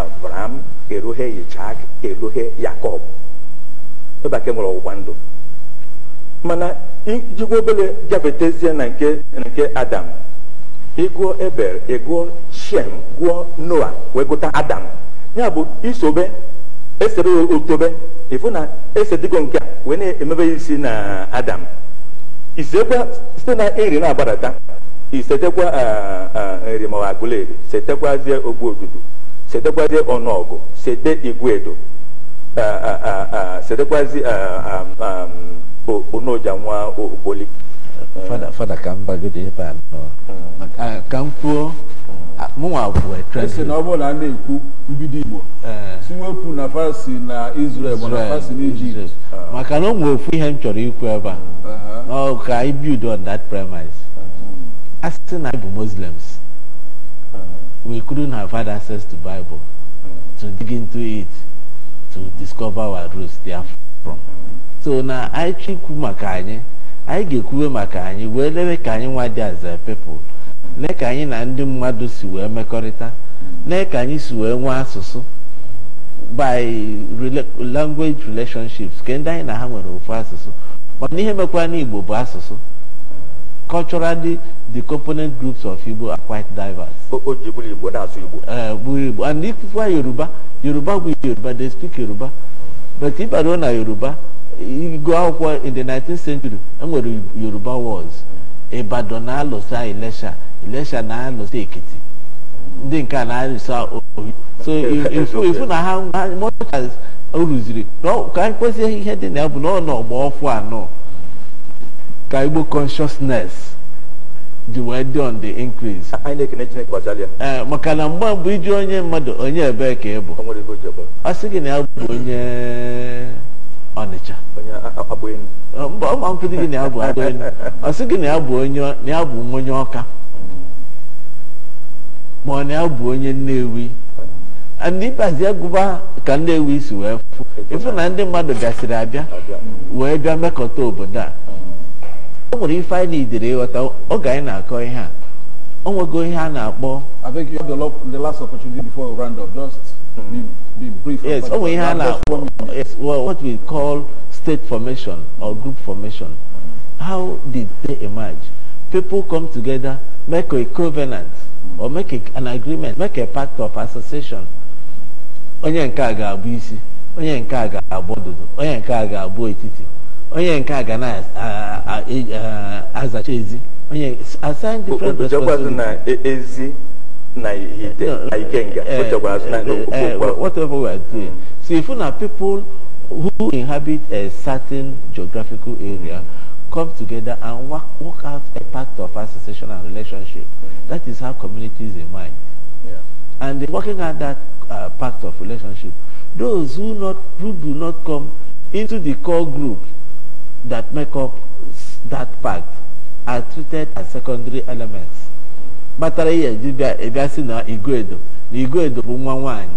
Abraham eruhe Ishak eruhe Yakọb ebe e nwere ọgbụgba ndụ mana ijikwa obere gafetezie na nke nke Adam ịgụọ ebele ịgụọ Shem gụọ Noa wee gụta Adam ya bụ isobe esere otobe ịfụ na esedigo nke a wee na-emebe isi na Adam isekwa site na iri na-agbadata isetekwa ah, ah, nri ma ọ agụleri setekwazie ogbu odudu sedekwazie ọnụọgụ sede igwedo sedekwazi onoja nwa okpoli fada ka m bagodo ebe a nọ hmm. ka m kwuo mụnwa bụ esi na ọ bụrụ na a na-ekwu mbido igbo eh. si wepụ na fasi na Izrel ma na fasi na ijipt ah. maka na o nwere ofu ihe m chọrọ ikwu ebe a uh-huh. ka anyị build on that premise hmm. a sị na anyị bụ muslims we couldn't have had access to Bible to dig into it to discover our roots they from. so na anyị maka anyị anyị ga-ekwuwe maka anyị wee lewe ka anyị nwa dị as a people lee ka anyị na ndị mmadụ si wee mekọrịta lee ka anyị si wee nwee asụsụ by language relationships nke ndị anyị na ha nwere ofu asụsụ na ihe mekwara n'Igbo bụ asụsụ culturally, the component groups of Igbo are quite diverse. Ojibwe Igbo, that's Igbo. Uh, Igbo. And if you are Yoruba, Yoruba will Yoruba, they speak Yoruba. But if I don't know Yoruba, you go out in the 19th century, and where Yoruba was. Ibadan na-alụsa Ilesha, Ilesha na-alụsa Ekiti. Ndị nke a na-alụsa Oyo. So ifu ifu na ha much as o rụziri, ka anyị kwesịghị ihe dị na ya bụ na ọ nọ anọ. ka Igbo consciousness ji wee dị on the increase ee eh, maka na mgbe mbụ iji onye mmadụ onye ebee ka ị bụ ọ sị gị na ya bụ onye Ọnịcha eh, ọ mkpụdị gị na ya bụ Agbaenu ọ sị gị na ya bụ onye Ọka ma ọ na ya bụ onye Nnewi ndị ịbazi agụba ka Nnewi si wee fụ ife na ndị mmadụ bịasịrị abịa wee bịa mekọta obodo a o nwere ife anyị na-idere ịghọta oge anyị na-akọ ihe a o nwego ihe a na-akpọ I think you have the last opportunity before we round up just be, brief yes o nwere ihe a na-akpọ yes well what we call state formation or group formation how did they emerge people come together make a covenant or make a, an agreement make a pact of association onye nke a ga-abụ isi onye nke a ga-abụ ọdụdụ onye nke a ga-abụ etiti onye nke a ga na-azacha ezi onye assign different responsibilities whatever we are doing so if na people who inhabit a certain geographical area come together and work, work out a pact of association and relationship mm. that is how communities emerge yeah. and working out that uh, pact of relationship those who not who do not come into the core group that make up that part are treated as secondary elements kpatara ihe ji bịa ịbịa e si na Igwedo na Igwedo bụ nwa nwanyị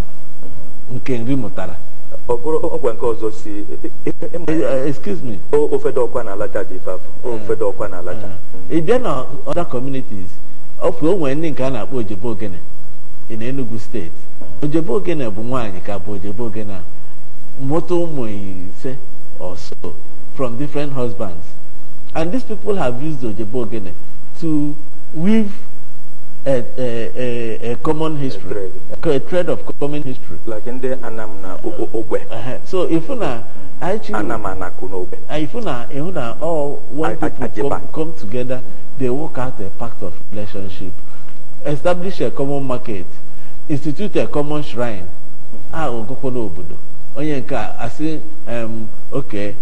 nke nri mụtara ọkwa nke ọzọ si e, e, eh, eh, excuse me ofedo ọkwa na alacha dị ifeafọ ofedo hmm. ọkwa na alacha hmm. ị bịa na ọda communities ofu o nwere ndị nke a na-akpọ ojebe ogene na Enugu steeti hmm. ojebe ogene bụ nwaanyị ka bụ ojebe ogene a mụta ụmụ ise ọsọ from different husbands. And these people have used Ojebogene to weave a, a, a, a common history, a thread. a thread. of common history. Like in the Anamna Obe. Uh, uh-huh. so if una mm. actually Anam Obe. Uh, if all when people come, come together, they work out a pact of relationship, establish a common market, institute a common shrine. Ah, a, um, okay,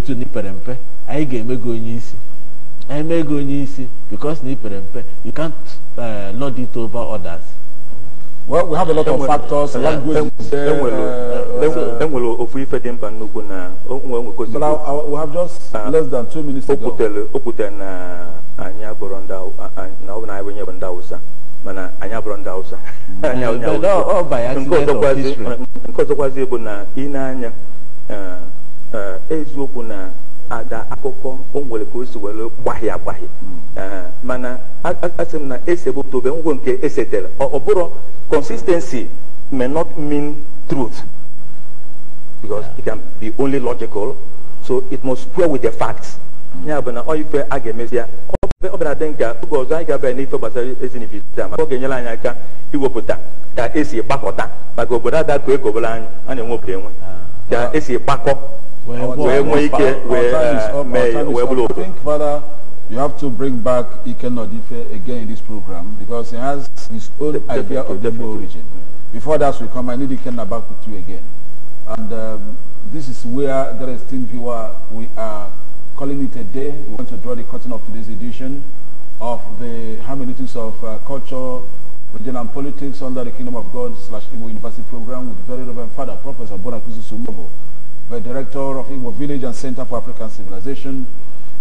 ntu n'ipere mpe anyị ga-eme isi anyị isi because n'ipere mpe you can't uh, eh, lord it over others. well we have a lot of factors language is there. nwere ofu ife di mba nnukwu na onwe nwekozi. but we have just ah, less than two minutes ago. o kwutere na ah, anyị abụrụ ndị ah, na ọ bụ na anyị onye bụ ndị awụsa mana anyị abụrụ ndị awụsa. nke ọzọkwazi bụ na ị na-anya eh, Eh, eziokwu na ada akụkọ o nwere ka o si were gbahie agbahie hmm. eh, mana asị m na esebụtobe ngwo nke esetere ọ bụrụ consistency may not mean truth because it can be only logical so it must square with the facts hmm. ya bụ na ọ ife a ga-emezi ya ọ bịara dị nka oge ọzọ anyị ga-abịa n'ife gbasara ezinifita maka ọ ga-enyere anyị aka iwepụta ka esi gbakọta maka obodo ada ka ekobere anyị a na-enwe obodo enwe ah. ka ah. esi kpakọ wee nwee ike wee eh, mee wee bụrụ obodo You have to bring back Ike Nodife again in this program because he has his own De idea of the origin. Before that, we come. I need Ike back with you again, and um, this is where the esteemed viewer we are calling it a day. We want to draw the curtain of today's edition of the Hermeneutics of uh, Culture Regional Politics under the Kingdom of God slash Igbo University Program with the Very Reverend Father Professor Bonakuzu Sumobo, the Director of Igbo Village and Center for African Civilization,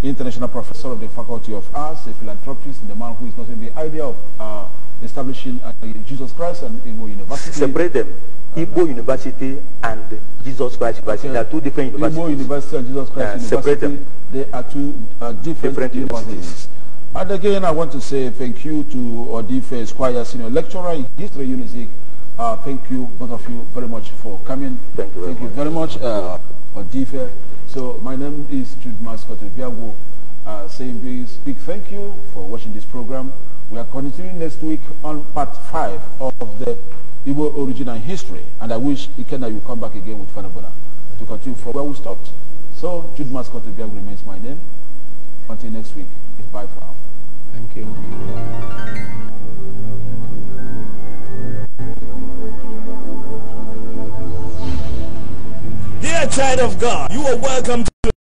International Professor of the Faculty of Arts, a philanthropist, the man who is not only the idea of uh, establishing uh, Jesus Christ and Igbo University. Separate them. Uh, Igbo University and Jesus Christ University okay. are two different universities. Igbo University and Jesus Christ uh, University, they are two uh, different, different universities. universities. And again, I want to say thank you to Odife Esquire, Senior Lecturer in History Unizik. Uh, thank you, both of you, very much for coming. Thank you very thank much. Odifa. very much uh, Odife. So my name is Jude Mascot Biago, uh, saying this big thank you for watching this program. We are continuing next week on part 5 of the Igbo origin and history. And I wish Ikenna will come back again with Fanabona to continue from where we stopped. So Jude Mascot Biago remains my name. Until next week, goodbye bye for now. Thank you. Dear child of God, you are welcome to